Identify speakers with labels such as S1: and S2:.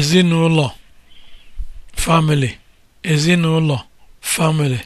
S1: ezinụlọ family